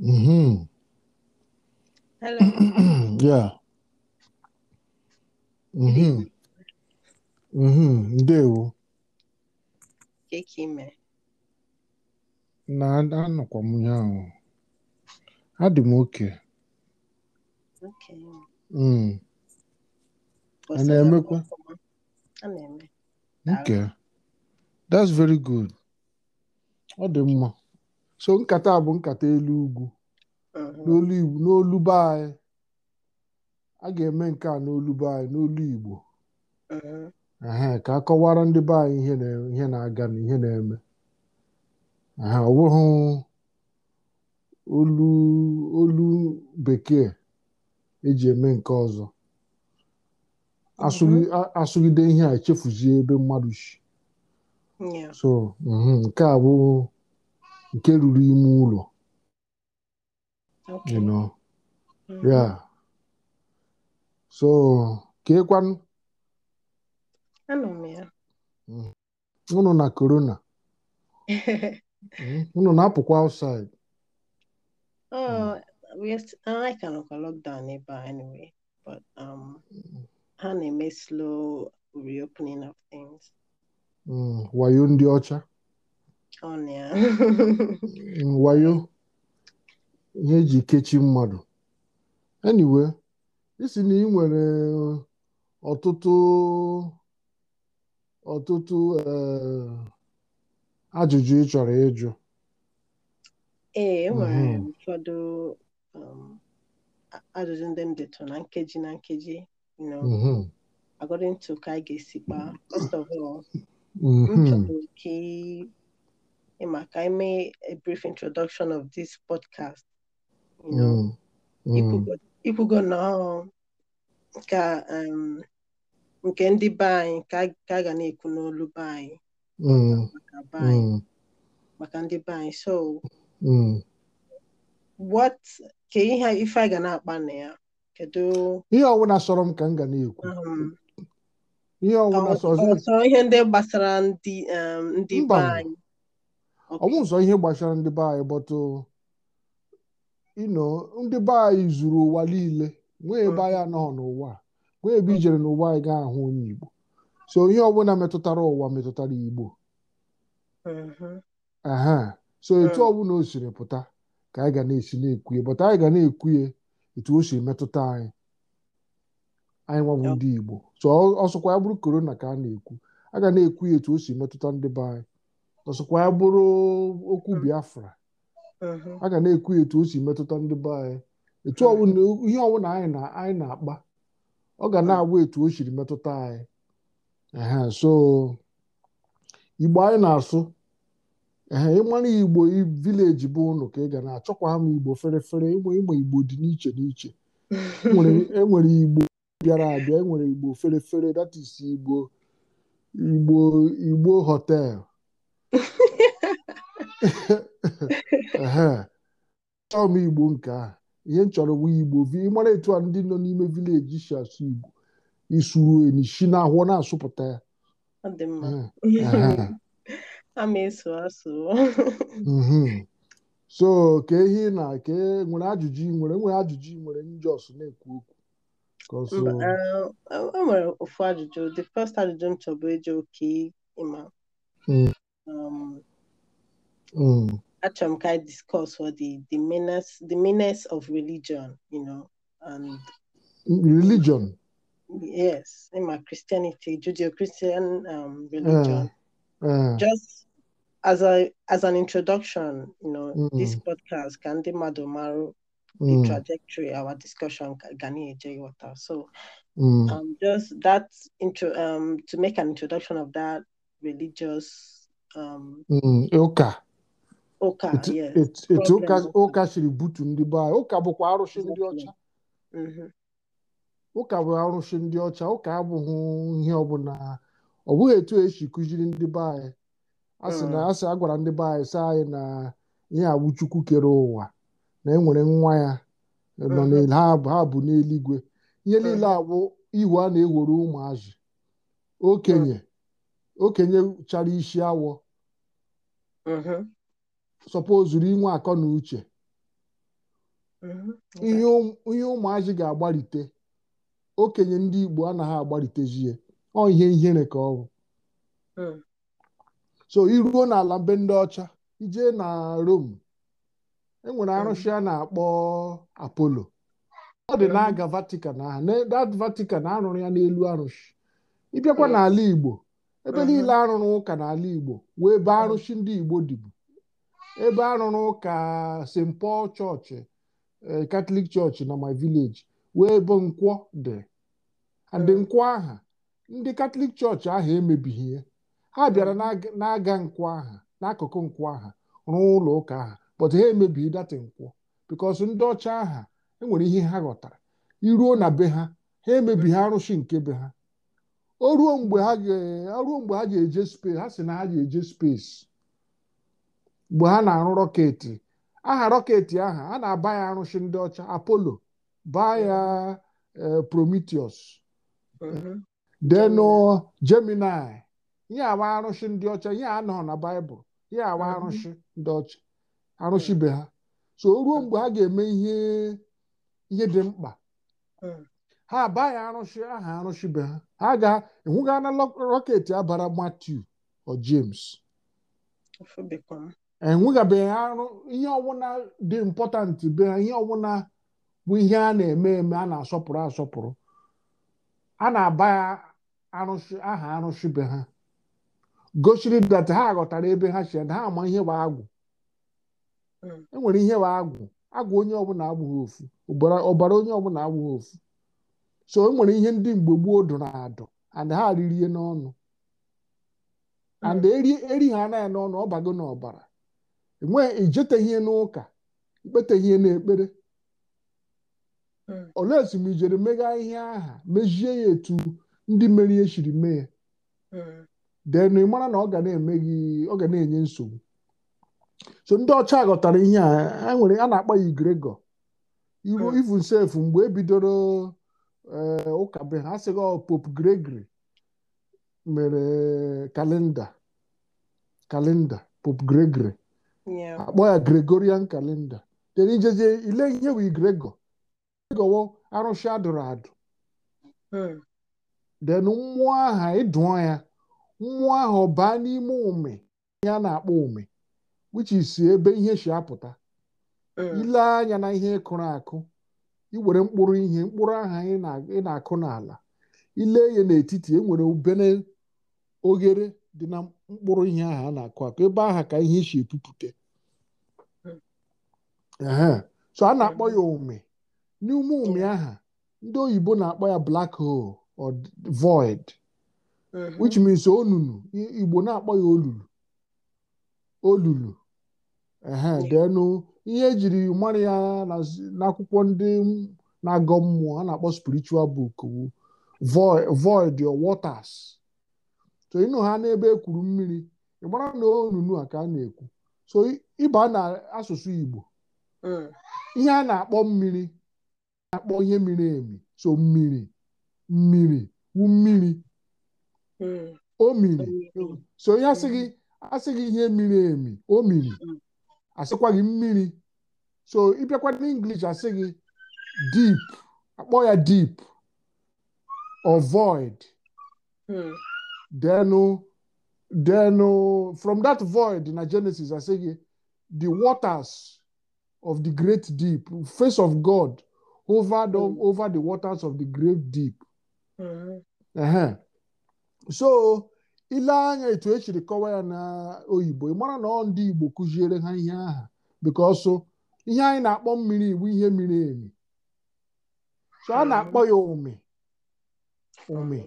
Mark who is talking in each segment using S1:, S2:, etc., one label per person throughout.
S1: Mm-hmm.
S2: Hello.
S1: yeah. Mm-hmm. Mm-hmm. Ndewo. Keke Na anọkwa m ya ahụ. Adị m oke. Mm. A na-emekwa? A na-eme. That's very good. Ọ dị mma. so nkata bụ nkata elu ugwu n'olu be anyị a ga-eme nke a n'olu be anyị n'olu Igbo ka akọwara ndị be anyị ihe na-aga na ihe na-eme ọ bụghị olu olu bekee eji eme nke ọzọ asụgide ihe a echefuzie ebe mmadụ shi so mhm, nke a bụ nke ruru ime ụlọ you know mm. ya so ka ịkwanụ mm. unu na korona mm. unu na-apụkwa outside
S2: ha na-eme slow reopening of things
S1: wayo ndị ọcha Oh, wayo ihe eji kechi mmadụ eniwe isi na ị nwere eh, ọtụtụ ọtụtụ eh, ajụjụ ị chọrọ ịjụ
S2: ee eh, enwere mhm. ụfọdụ um, ajụjụ ndị m dịtụ na nkeji na nkeji mhm. according to ka a ga-esi kpaa first of all mhm. Mark, I make a brief introduction of this podcast. You know, mm. ikwugo mm. na ka um, nke ndị be anyị ka a ga na-ekwu n'olu be anyị mm. mm. maka ndị be anyị so what ka ihe ife a ga na-akpa na ya kedu
S1: ihe ọwụna sọrọ m ka m ga na-ekwu um, ihe ọwụna sọrọ ihe ndị gbasara
S2: ndị um, ndị be anyị
S1: ọnwụ ụzọ ihe gbasara ndị be anyị bọtụ ino uh, ndị be anyị zuru ụwa niile nwee ebe hmm. anyị anọghị n'ụwa nwee ebe ijere hmm. n'ụwa anyị gaa ahụ onye Igbo so ihe ọbụla metụtara ụwa metụtara Igbo uh-huh. aha so hmm. etu ọbụla o siri pụta ka anyị ga na-esi na-ekwuye bọta anyị ga na-ekwuye etu o si metụta anyị anyị nwabụ ndị Igbo so ọsọkwa ya bụrụ korona ka a na-ekwu a ga na-ekwu ya etu o si metụta ndị be anyị ọsọkwa ya bụrụ okwu biafra aga na-ekwu etu o si metụta ndị be anyị etu ihe ọbụla anyị na-akpa ọ ga na-agwa etu o siri metụta anyị so igbo anyị na-asụ ịmara igbo vileji bụ ụnụ ka ị ga na-achọkwa m igbo ferefere ịma igbo dị n'iche n'iche enwere e igbo bịara abịa enwere igbo ferefere that is igbo igbo igbo hotel chọọ m igbo nke ahụ ihe m chọrọ nwa igbo ịmara etu a ndị nọ n'ime vileji si asụ igbo isuru enyi si n'ahụọ na-asụpụta ya mhm. so ka ehi na ka e nwere ajụjụ nwere nwere ajụjụ nwere njọs na-ekwu
S2: okwu o um, e, e nwere ofu ajụjụ the first ajụjụ m chọbụ eji oke ịma hmm. um, Mm. Achamkai discourse for the the menace the menace of religion, you know, and
S1: religion.
S2: Yes, in my Christianity, Judeo-Christian um, religion. Uh, uh. Just as a as an introduction, you know, mm. this podcast, Gandhi Madomaru, mm. the trajectory, our discussion, Gani Ejay So Mm. Um, just that intro um, to make an introduction of that religious um,
S1: mm, okay
S2: etu
S1: ụka siri butu ndị be anyị ụka bụkwa arụsị ndị ọcha ụka mm-hmm. bụ arụsị ndị ọcha ụka abụghị ihe ọbụla ọ bụghị etu esi kụziri ndị be anyị asị na mm. asị a gwara ndị be anyị sị anyị na ihe abụ kere ụwa na enwere nwa ya nọ mm-hmm. ha bụ n'eluigwe ihe mm. niile abụ ihu a na-ewere ụmụazị okenye mm. okenye chara isi awọ mm-hmm. sọpozuru inwe akọ na uche mhm. ihe ụmụazị ga-agbalite okenye ndị Igbo anaghị agbalitezie ọ ihe ihere ka ọ bụ hmm. so iruo n'ala mbe ndị ọcha ijee na Rome enwere hmm. arụsị a na-akpọ apolo ọ dị hmm. na-aga Vatican ahụ that Vatican arụrụ ya n'elu arụsị ịbịakwa n'ala Igbo ebe niile arụrụ ụka n'ala Igbo wee ebe arụsị ndị Igbo dịbu ebe a rụrụ ụka st paul chọọchị katọlik e, chọọchị na my village wee ebe nkwọ dị ndị hmm. nkwọ aha ndị katọlik chọọchị ahụ emebighị ya ha bịara hmm. na-aga nkwọ aha n'akụkụ nkwọ aha rụọ ụlọ ụka aha but ha emebighị data nkwọ because ndị ọcha aha enwere ihe ha ghọtara iruo na be ha ha emebighị arụsị nke be ha o ruo mgbe ha ga-eje space ha si na ha ga-eje space mgbe ha na-arụ rọketi aha rọketi aha a na-aba ya arụsi ndị ọcha apolo baa ya e, prometheus deno mhm. uh, gemini ihe awa arụchi ndị ọcha ihe a nọ na baịbụl ihe awa mhm. arụchi ndị ọcha mhm. be ha so ruo mgbe ha ga-eme ihe ihe dị mkpa ha abaghị arụsi aha be ha ha ga enwụgana rọketi abara Matthew o James enwegabeghị arụ ihe ọbụla dị mpọtantị be ha ihe ọbụla bụ ihe a na-eme eme a na-asọpụrụ asọpụrụ a na-aba ya aha arụsị be ha gosiri dat ha ghọtara ebe ha si ha ama ihe wa agwụ hmm. enwere ihe wa agwụ agwụ onye ọbụla agbụghị ofu ọbara onye ọbụla agbụghị ofu so enwere ihe ndị mgbe gboo dụrụ adụ and ha ririe n'ọnụ hmm. and eri ha anaghị n'ọnụ ọ bago n'ọbara enwe ijeteghie n'ụka ikpeteghie n'ekpere hmm. olee etu m ijere megha ihe aha mejie ya etu ndị ihe shiri mee ya hmm. den ị mara na ọ ga na-eme ọ ga na-enye nsogbu so ndị ọcha ghọtara ihe a nwere a na-akpọ ya igregọ ivu hmm. sef mgbe ebidoro eh, ụka be ha sịghị pop oh, Pope Gregory mere kalenda kalenda Pope Gregory akpọ ah, ya Gregorian kalenda tere ijezie ile ihe wụ Gregor Gregor arụsị adụrụ adụ den mmụọ aha ịdụọ ya mmụọ ahụ baa n'ime ume ya na-akpọ ume which is ebe ihe si apụta hmm. ile anya na ihe ịkụrụ akụ iwere mkpụrụ ihe mkpụrụ aha ị e na-akụ e n'ala ile ya n'etiti enwere ubene oghere dị na mkpụrụ ihe ahụ a na-akụ akụ ebe aha ka ihe si epupụta so a na-akpọ ya ome n'ume ome aha ndị oyibo na-akpọ ya black hole or void which means onunu igbo na-akpọ ya olulu olulu denu ihe ejiri mara ya n'akwụkwọ ndị na-agọ mmụọ a na-akpọ spiritual book void or waters so ịnụ ha n'ebe ekwuru mmiri ịmara na onunu a ka a na-ekwu so ịba na asụsụ igbo ihe a na-akpọ mmiri na-akpọ ihe miri emi so mmiri mmiri wu mmiri o miri so ihe asịghị asịghị ihe miri emi o miri asịkwa gị mmiri so ịbịakwa n'English asị gị deep akpọ ya deep or void denu then from that void na Genesis asị gị the waters of the great deep, face of God mm. over the waters of the great deep. Mm. uh So ile anya etu echiri kọwa ya na oyibo na ọ ndị Igbo kụziere ha ihe aha bikọsụ ihe anyị na-akpọ mmiri iwu ihe miri emi so a hmm. na-akpọ ya ụmị ụmị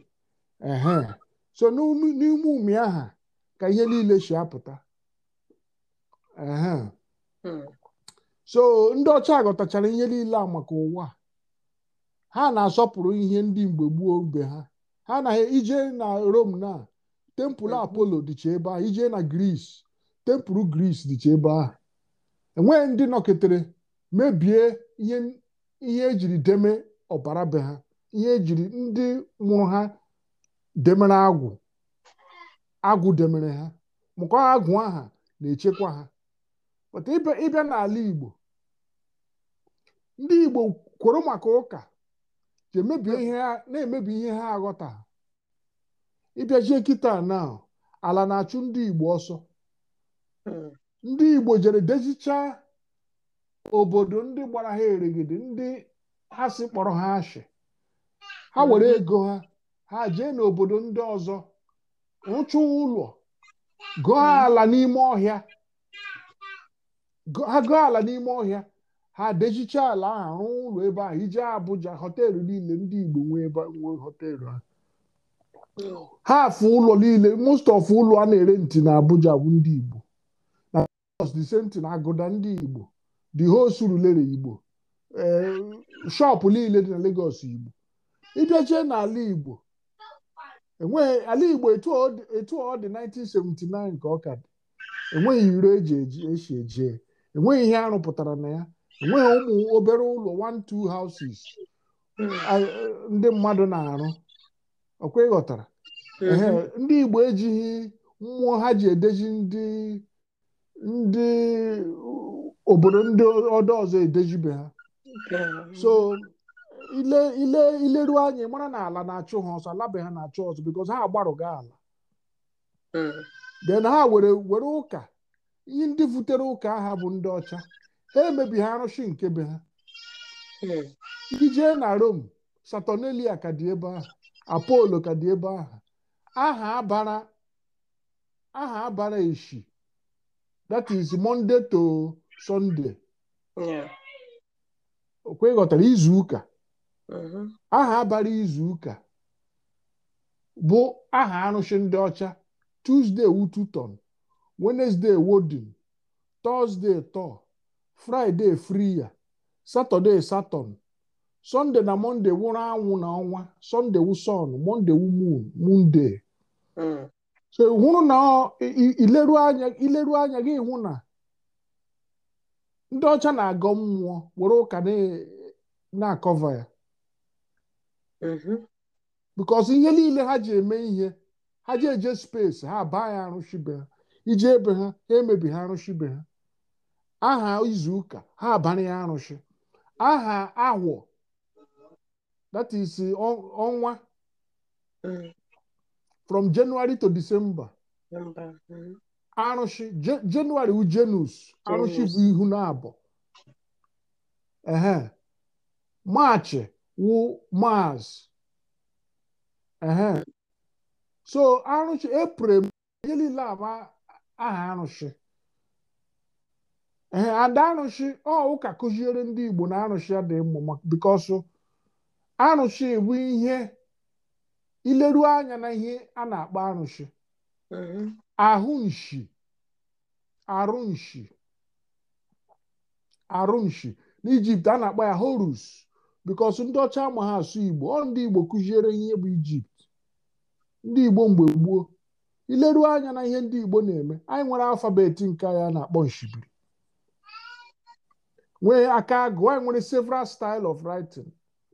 S1: so n'ime ụmị aha ka ihe niile si apụta so ndị ọcha ghọtachara ihe niile a maka ụwa ha na-asọpụrụ ihe ndị mgbe gboo mgbe ha ha na ije na Rome na tempụl Apollo dịcha ebe a ije na Gris tempụl Gris dịcha ebe ahụ enweghị ndị nọketere mebie ihe ejiri deme ọbara be ha ihe ejiri ndị mụrụ ha demere agwụ agwụ demere ha mụkọ agwụ aha na-echekwa ha otu ịbịa n'ala Igbo ndị Igbo kwụrụ maka ụka ji ihe na-emebi ihe ha aghọta ịbịajie kịta na ala na-achụ ndị Igbo ọsọ hmm. ndị Igbo jere dezichaa obodo ndị gbara ha erigide ndị ha si kpọrọ ha ashị ha hmm. were ego ha ha jee n'obodo ndị ọzọ rụchaa ụlọ gụọ hmm. ala n'ime ọhịa agụ ala n'ime ọhịa ha dejicha ala ahụ rụọ ụlọ ebe ahụ ije Abuja họteelụ niile ndị Igbo nwee họteelụ ahụ ha afụ ụlọ niile most of ụlọ a na-ere ntị na Abuja bụ ndị Igbo na the same agụda ndị Igbo the whole Surulere Igbo eh, shop niile dị na Lagos Igbo ịbịachie n'ala Igbo e ala Igbo etu ọ dị 1979 ka ọ ka dị enweghị iro eji eji eje enweghị ihe arụpụtara na ya enweghị ụmụ obere ụlọ one two houses ndị mmadụ na-arụ ọkwa ịghọtara ndị Igbo ejighị mmụọ ha ji edeji ndị ndị obodo ndị ọdọ ọzọ edejibe ha so ile ile ileruo anyị mara na ala na-achụ ha ọsọ alabe ha na-achụ ọsọ bikos ha agbarụga ala hmm. then ha were ụka ihe ndị butere ụka aha bụ ndị ọcha ha emebighị arụsị nke be ha hmm. jee na rom Saturnalia ka dị ebe ahụ Apollo ka dị ebe ahụ aha abara aha abara eshi that is Monday to Sunday okwe ghọtara izu ụka mm-hmm. aha abara izu ụka bụ aha arụsị ndị ọcha Tuesday wututon Wednesday wọdịn Thursday tọ Friday friya Saturday Saturn, Sunday na Monday wụrụ anwụ na ọnwa Sunday wu sun, Monday wu moon, Monday. Hmm. So hụrụ na ileru anya ileru anya gị hụ na ndị ọcha na-agọ mmụọ were ụka na-akọva ya mm-hmm. because ihe niile ha ji eme ihe ha ji eje space ha baa ya arụchibe ha iji ebe ha ha emebi ha be ha aha izu ụka ha abanye ya aha awọ that is ọnwa from January to December
S2: Januari
S1: January ujenus arụshi bụ ihu na abụọ ehe maachị wụ maazị so arụshi april ihe niile ama aha arụsị ee ada arụsị ọ ụka kụziere ndị Igbo na arụsị dị mma bikos arụsị bụ ihe ileru anya na ihe a na-akpọ arụsị ahụ arụnshi arụ nshi n'ijipt a na-akpọ ya horus bikos ndị ọcha ma ha asụ Igbo ọ ndị Igbo kụziere ihe bụ ijipt ndị Igbo mgbe gboo ileruo anya na ihe ndị Igbo na-eme anyị nwere alfabeti nke anya na-akpọ nshibiri nwee aka agụ anyị nwere several style of writing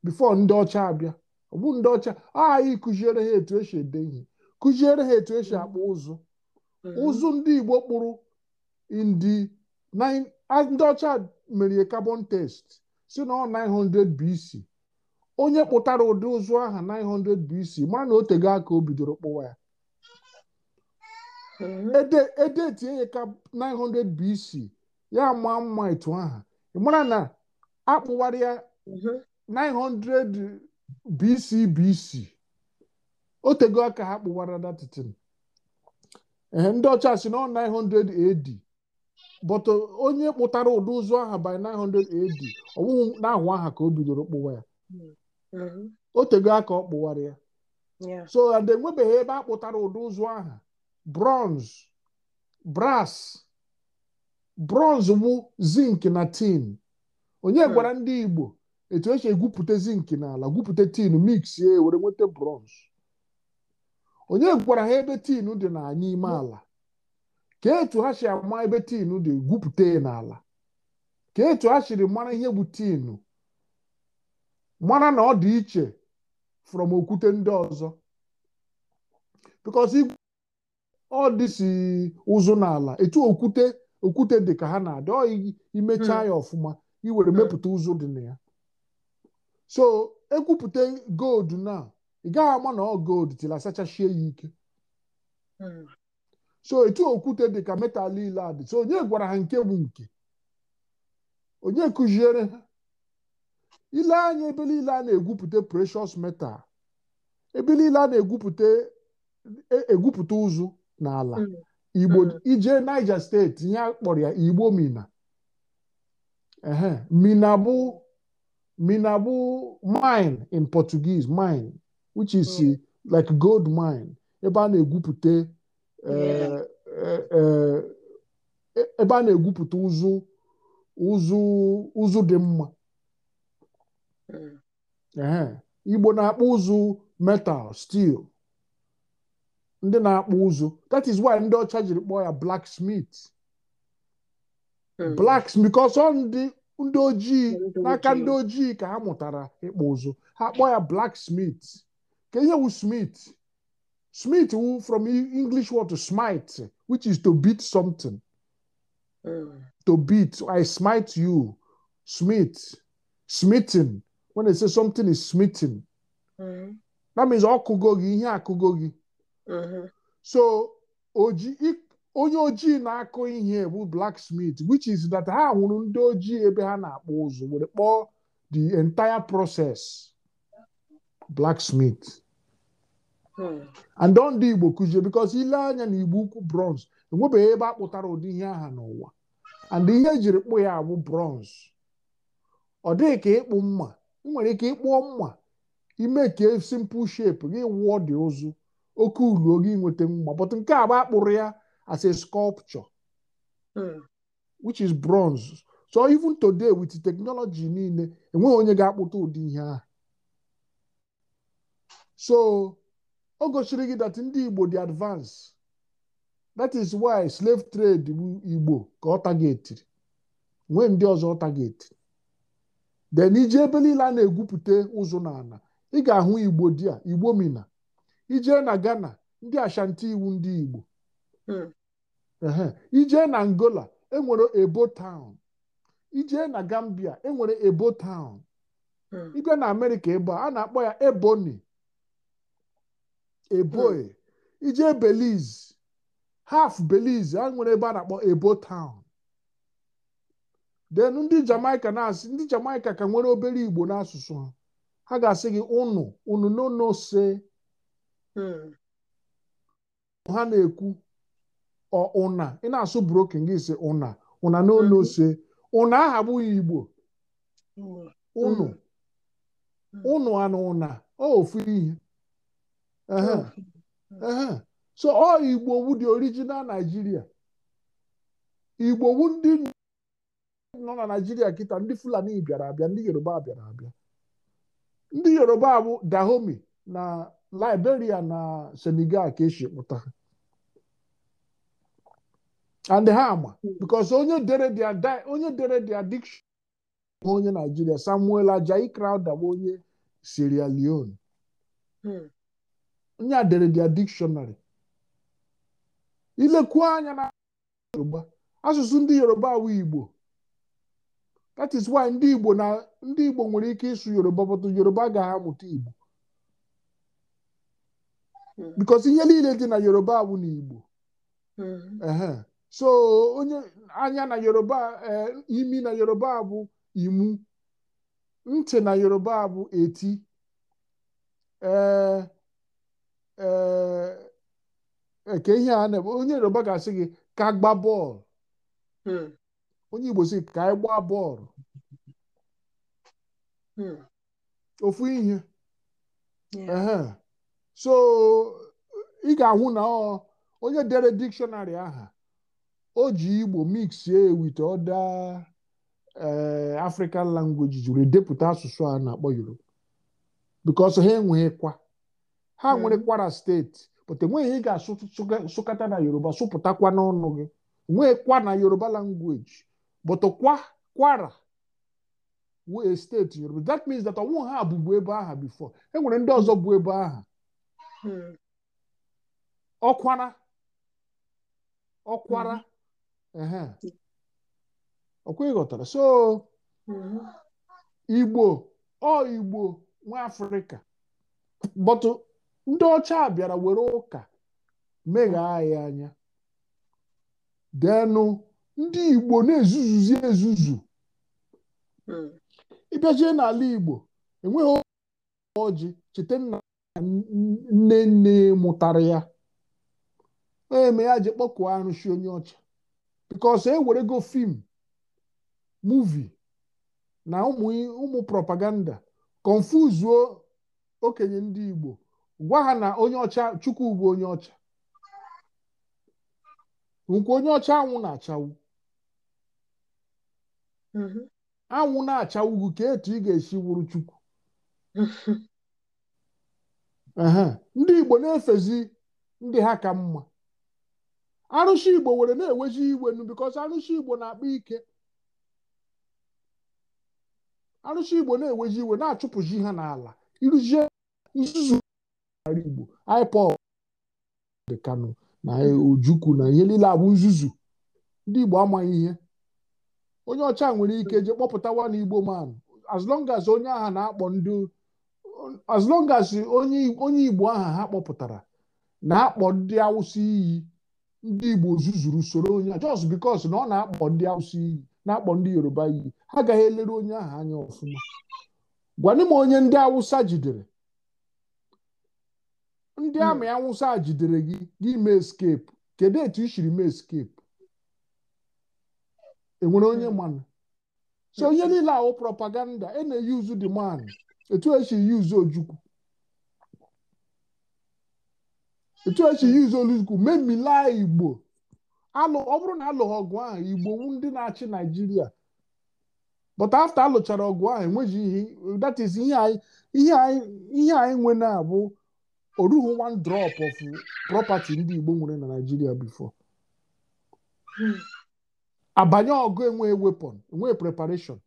S1: before ndị ọcha abịa ọ bụ ndị ọcha ah, anyị kụziere ha etu esi ede ihe kụziere ha etu esi akpọ ụzụ mm. ụzụ ndị Igbo kpụrụ ndị ọcha mere carbon test si na ọ 900 BC onye kpụtara ụdị ụzụ aha 900 BC mara na o tego aka o bidoro kpụwa ya edetie ya ka 900 BC ya ama mma etu aha mara na akpụwarị ya 900 BC BC o tego aka ha kpụwara datitin ee ndị ọcha si na 900 AD but onye kpụtara ụdị ụzọ aha by 900 AD ọwụwụ n'ahụ aha ka o bidoro kpụwa ya mhm. o tego aka ọ kpụwara ya so enwebeghị ebe a kpụtara ụdị ụzọ aha bronze brass bronze bụ zinc na tin onye hmm. gwara ndị Igbo etu esi egwupụta zinc n'ala gwupụta tin mix ya were nweta bronze onye gwara ha ebe tin dị ime hmm. ala ka etu ha si ama ebe tin dị gwupụta n'ala ka etu ha siri mara ihe bụ tin mara na ọ dị iche from okwute ndị ọzọ ọ dịsi ụzụ n'ala etu okwute okwute dị ka ha na-adị ọ imechaa hmm. ya ọfụma iwere hmm. mepụta ụzụ dị na ya so ekwupụta gold na ị gaghị ama na ọ gold tila asachachie ya ike hmm. so etu okwute dị ka metal ile a dị so onye gwara ha nke bụ nke onye kụziere ha ile anya ebe niile a na-egwupụta precious metal ebe niile a na-egwupụta e, egwupụta ụzụ n'ala mm. igbo mm. ije Niger steeti ya kpọrọ ya igbo mina mina bụ mina bụ mine in Portuguese mine which is mm. like gold mine ebe a na-egwupụta eh, eh, eh, ebe a na-egwupụta ụzụ ụzụ ụzụ dị mma igbo na-akpọ ụzụ metal steel ndị na-akpụ ụzụ that is why ndị ọcha jiri kpọọ ya black smith ka ọsọ ndị ojii n'aka ndị ojii ka ha mụtara ịkpụ ụzụ ha kpọọ ya smith. ka ihe wu smith smith wu from e, english word to smite which is to beat something hmm. to beat i smite you smith smithing when they say something is smithing. Hmm. that means ọkụgo gị ihe akụgo gị Uh-huh. so onye ojii na-akụ ihe bụ blacksmith which is that ha hụrụ ndị ojii ebe ha na-akpụ ụzụ were kpọọ the entire process blacksmith hmm. and ndị Igbo kụzie because ile anya na Igbo ukwu bronze enwebeghị ebe akpụtara ụdị ihe aha n'ụwa and ihe ejiri kpụ ya bụ bronze ọ dịghị ka ịkpụ mma ị nwere ike ịkpụọ mma ime ka simple shape gị wụọ dị ụzụ oke uru oge inweta mma but nke agba akpụrụ ya as a sculpture hmm. which is bronze so even today with technology niile enweghị onye ga-akpụta ụdị ihe ahụ so o gosiri gị that ndị Igbo dị advance that is why slave trade Igbo ka ọ targetiri nwee ndị ọzọ targetiri then iji ebe niile a na-egwupụta ụzụ n'ala ị ga-ahụ Igbo dia Igbo mina ijee na Ghana ndị Ashanti iwu ndị Igbo hmm. ijee na Angola enwere Ebo taụn ijee na Gambia enwere Ebo taụn hmm. igwe na Amerịka ebe a na-akpọ ya Ebonyi Eboe hmm. ijee Belize half Belize a nwere ebe a na-akpọ Ebo taụn then ndị Jamaica na-asị ndị Jamaica ka nwere obere Igbo n'asụsụ ha ha ga-asị gị ụnụ ụnụ n'ụnụ ose Hmm. ha na-ekwu ụna ị na-asụ broken gị si ụna ụna n'olu ose hmm. ụna aha igbo ụnụ hmm. ụnụ anụ ụna ofu ihe so ọ igbo wu dị original naijiria igbo wu ndị nọ na naijiria kịta ndị fulani bịara abịa ndị yoruba bịara abịa ndị yoruba bụ dahomi na Liberia na Senegal ka esi pụta ha and ha ama because onye dere dia onye dere dia bụ Naijiria Samuel Ajayi Crowther bụ onye Sierra Leone hmm. onye dere dia dictionary ilekwu anya na Yoruba asụsụ ndị Yoruba awụ Igbo that is why ndị Igbo na ndị Igbo nwere ike ịsụ Yoruba bụtụ Yoruba gaghị amụta Igbo Hmm. bikos ihe niile dị na yoruba awụ na igbo hmm. so onye anya na yoruba e, imi na yoruba bụ imu ntị na yoruba bụ eti ee e, eke ihe a na-eme onye yoruba ga-asị gị ka gba bọọlụ hmm. onye igbo sị ka anyị gbaa bọọlụ ofu ihe so ị ga-ahụ na ọ onye dere dikshọnarị aha o ji igbo mixie with other eh, african languages jiri depụta asụsụ a na-akpọ yoruba because ha enweghịkwa ha hmm. nwere kwara steeti but enweghị ị ga-asụkata na yoruba sụpụtakwa n'ọnụ gị nweekwa na yoruba language but kwa kwara steeti yoruba that means that ọnwụ ha bụbu ebe aha before enwere ndị ọzọ bụ ebe aha Hmm. ọkwara ọkwara hmm. hmm. ọkwa so igbo ọ igbo nwa afrịka bọtụ ndị ọcha bịara were ụka megha ya anya denụ ndị igbo na-ezuzuzi ezuzu ịbịajie n'ala igbo enweghị ọjị cheta nna nne nne mụtara ya eme ya ji kpọkụọ arụsị onye ọcha bikos ewerego fim muvi na ụmụ propaganda konfuzuo okenye ndị Igbo gwa ha na onye ọcha Chukwu bụ onye ọcha nkwa onye ọcha anwụ na-achawụ mm-hmm. anwụ na-achawụ bụ ka etu ị ga-esi wụrụ Chukwu ndị Igbo na-efezi ndị ha ka mma arụsị Igbo were na-eweji iwe nu bikos arụsị Igbo na-akpa ike arụsị Igbo na-eweji iwe na achụpụzi ha n'ala irụjie nzuzu Igbo IPOB dị Kano na Ojukwu na ihe niile abụ nzuzu ndị Igbo amaghị ihe onye ọcha nwere ike jee kpọpụtawa na Igbo man as long as onye agha na-akpọ ndị as long as onye igbo aha ha kpọpụtara na-akpọ ndị awụsa iyi ndị igbo zuzuru usoro onye just because na ọ na-akpọ ndị awụsa iyi na-akpọ ndị yoruba iyi ha agaghị elere onye ahụ anya ọfụma gwanị m onye ndị awụsa jidere ndị amị awụsa jidere gị gị mee escape kedu etu i siri mee escape enwere onye mmanụ so onye niile ahụ propaganda e na-eyuzu dị man etu esi yuzu ojukwu etu esi yuzu olukwu memilaa igbo alụ ọ bụrụ na alụghị ọgụ ahụ igbo ndị na-achị naijiria but after alụchara ọgụ ahụ enweghị ihe ihe anyị nwe na-abụ oruhu one drop of property ndị igbo nwere na naijiria before hmm. abanye ọgụ enwe weapon enwe preparation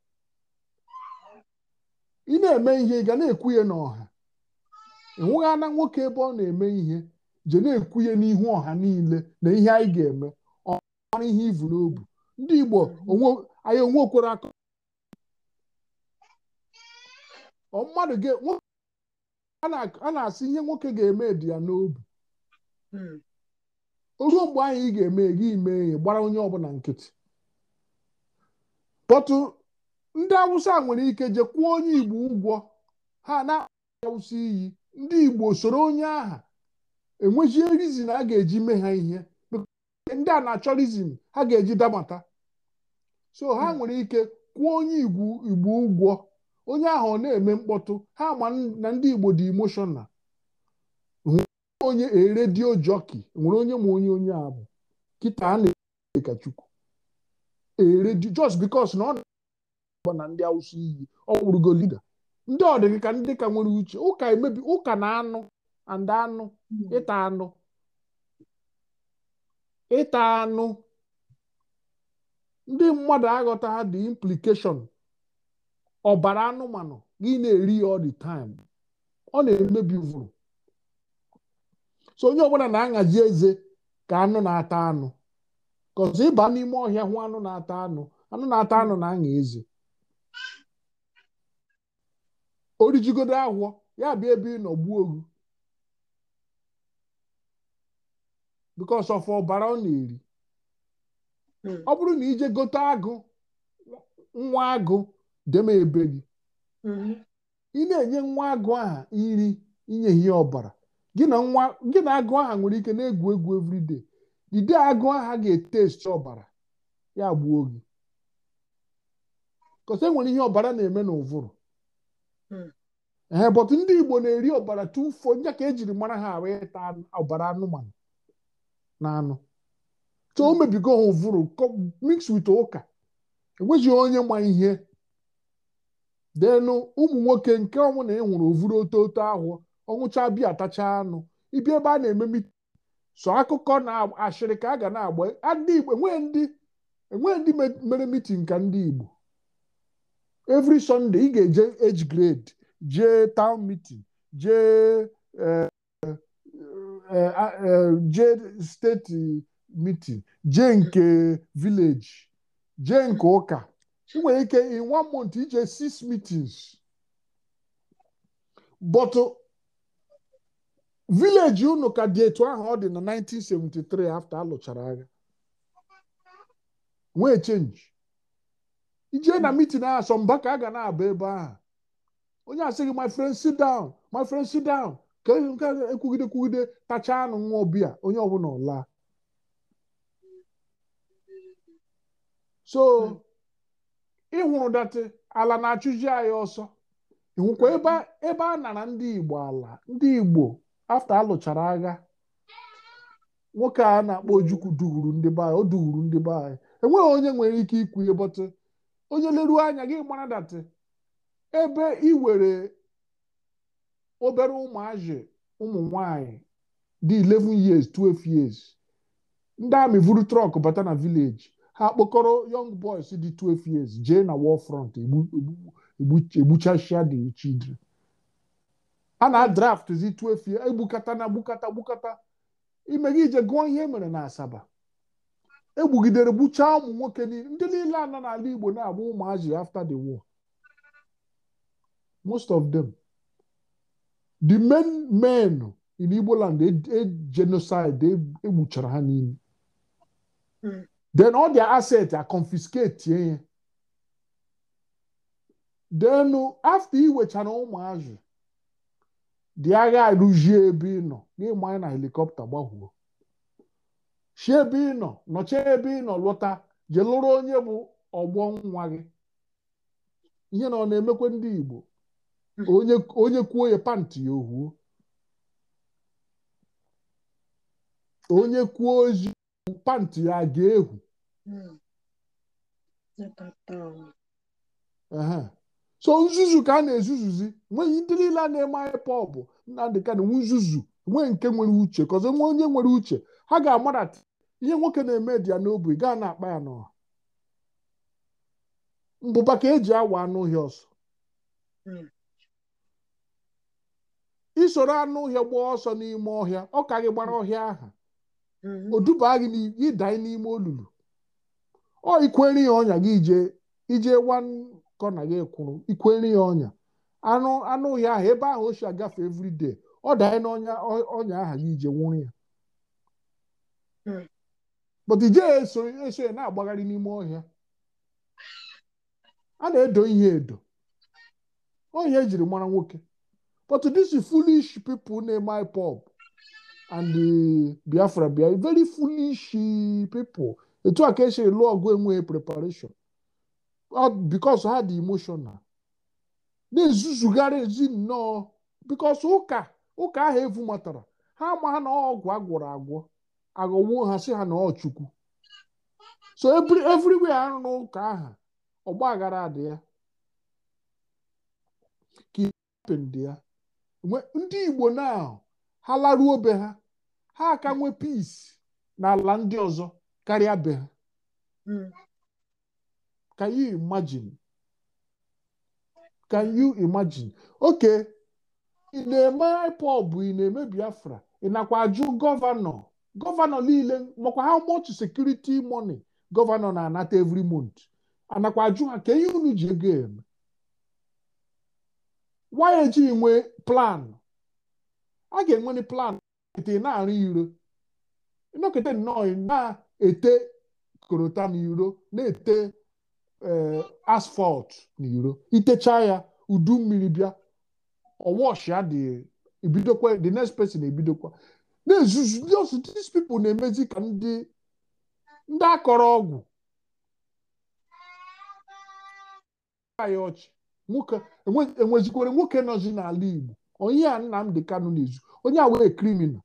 S1: ị na-eme ihe ị ga na-ekwu ya n'ọha ana nwoke ebe ọ na-eme ihe je na-ekwu n'ihu ọha niile na ihe anyị ga-eme ọ ihe ivu n'obu ndị Igbo anyị onwekwere aka mmadụ a na-asị ihe nwoke ga-eme dị ya n'obi hmm. ruo mgbe anyị ga-eme gị mee ya gbara onye ọbụla nkịtị kpọtụ ndị awụsa nwere ike je kwụọ onye igbo ụgwọ ha na awụsa iyi ndị igbo soro onye aha enwezie rizin a ga-eji mee ha ihe ndị a na-achọ rizin ha ga-eji dabata so ha nwere ike kwụọ onye igbo ụgwọ onye ahụ ọ na-eme mkpọtụ ha ma na ndị igbo dị emoshọnal onye eredio jọki nwere onye ma onye onye abụ kịta a na-ekachukwu eredio just because na ọ Igbo na ndị Awụsa iyi ọ wụrụgo liga ndị ọdịgị ka ndị ka nwere uche ụka emebi ụka na anụ and anụ hmm. ịta anụ ịta anụ ndị mmadụ aghọtaghị the implication ọbara anụmanụ gị na-eri ya all the time ọ na-emebi vụrụ so onye ọbụla na-aṅazi eze ka anụ na-ata anụ kọzi ịba n'ime ọhịa hụ anụ na-ata anụ anụ na-ata anụ na anya eze orijigodo agwọ ya bịa ebe ị nọ gbuo ogu bikos of ọbara ọ na-eri hmm. ọ bụrụ na ije gote agụ nwa agụ deme ebe gị hmm. ị na-enye nwa agụ aha iri inye ihe ọbara gị na agụ aha nwere ike na-egwu egwu everyday dide agụ aha ga-etesti ete ọbara ya gbuo gị kọsa enwere ihe ọbara na-eme n'ụvụrụ Hmm. ee eh, bọt ndị Igbo na-eri ọbara tufuo nya ka ejiri mara ha ahụ ịta ọbara anụmanụ na anụ so o mebigo ha ụvụrụ mix wit ụka enweghị onye ma ihe denụ ụmụ nwoke nke ọnwụ na enwere ovuru ototo ahụ ọnwụcha bịa atacha anụ ibia ebe a na-eme so akụkọ na ashịrị ka a ga na-agba enweghị ndị e e mere mitin ka ndị Igbo evri sọnde ị ga-eje age grade jee town meeting jee eh, eh, eh, ah, jee steeti mitin jee nke village jee nke ụka ị nwere ike in one month ije six meetings but village unu ka dị etu ahụ ọ dị na 1973 after alụchara agha nwee change ijee na hmm. meeting ahụ asọmba ka a ga na-aba ebe ahụ onye asịghị my friend sit down my friend sit down ka nke ekwugide kwugide tachaa anụ nwa ọbịa onye ọbụla ọla so hmm. ịhụrụ datị ala na-achụji anyị ọsọ ịhụkwa ebe a nara ndị Igbo ala ndị Igbo afta alụchara agha nwoke a na-akpọ Ojukwu duuru ndị be anyị o duuru ndị be anyị enweghị onye nwere ike ikwu ihe bọtụ onye leruo anya gị mara datị ebe iwere obere ụmụazị ụmụ nwanyị dị 11 years 12 years ndị amị vuru trọk bata na vileji ha kpọkọrọ young boys dị 12 years jee na war front egbuchachia the children a na draftzi 12 years egbukata na gbukata gbukata ime gị ije gụọ ihe e mere na Asaba egbugidere gbuchaa ụmụ nwoke ndị niile na n'ala Igbo na-abụ ụmụazị after the war most of them the main men in Igbo land e, e, genocide egbuchara e ha niile hmm. then all their a are confiscated ya eh? then after iwechara ụmụazị dị agha arụzie ebe ị nọ n'ịmanye na helikọpta gbagwuo chie ebe ị nọ nọchie ebe ị nọ lụta jee lụrụ onye bụ ọgbọ nwa gị ihe na ọ na-emekwa ndị Igbo onye kwuo ya pantị ya ohuo onye kwuo ozi pantị ya ga egwu so nzuzu ka a na-ezuzuzi nweghị ndị niile a na-eme anyị pọbụ Nnamdị Kanụ nwe nzuzu nwee nke nwere uche kọzọ nwe onye nwere uche ha ga-amarata ihe nwoke na-eme dị ya n'obi gaa na-akpa ya n'ọha mbụba ka eji awa anụ ụhịa ọsọ hmm. isoro anụ ụhịa gbaa ọsọ n'ime ọhịa ọ ka gị gbara ọhịa aha hmm. o duba gị ịdanye n'ime olulu ọ ikwere ya ọnya gị ije ije wankọ na gị kwụrụ ikwere ya ọnya anụ ụhịa aha ebe ahụ o si agafe everyday ọ danye n'ọnya ọnya aha gị ije nwụrụ ya Hmm. but ije eso eso na-agbagharị n'ime ọhịa a na-edo ihe edo ọhịa ejiri mara nwoke but disi fulish people na-eme pop and Biafra bia very foolish people etu a ka esi lụọ ọgụ enweghị preparation because ha dị emotional na-ezuzugharị ezi nnọọ because ụka ụka ahụ evu matara ha ama na ọgwụ agwọrọ agwọ aghọwo nhasi ha na ọ Chukwu so everywhere arụ n'ụka ahụ ọgba aghara adị ya ka dị ya ndị Igbo na ha laruo be ha ha aka nwee peace n'ala ndị ọzọ karịa be ha hmm. can you imagine can you imagine oke ị na-eme IPOB ị na-eme Biafra ị nakwa ajụ gọvanọ gọvanọ niile makwa ha much sekuriti money gọvanọ na-anata every month anakwa ajụ ha ka ihe unu ji ego eme why ejighị nwee plan a ga enwe plan ete na-arụ iro nọkete nnọọ na-ete korota n'iro na-ete na eh, n'iro itecha ya udu mmiri bịa ọshịa dị ebidokwa dị next person ebidokwa na-ezuzu just dis people na-emezi ka ndị ndị akọrọ ọgwụ ya ọchị nwoke enwezikwere nwoke nọzi n'ala Igbo onye a dị Kanu na-ezu onye a wee kriminal